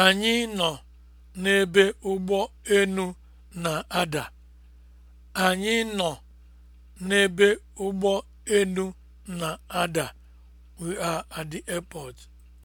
Anyị nọ n'ebe ụgbọ enu na-ada. Anyị nọ n'ebe ụgbọ enu na-ada. We are at the airport.